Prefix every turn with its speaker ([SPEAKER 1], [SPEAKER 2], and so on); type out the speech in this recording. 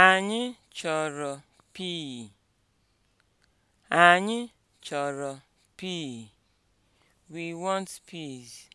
[SPEAKER 1] Anyị chọrọ pii. Anyị chọrọ pii. We want peas.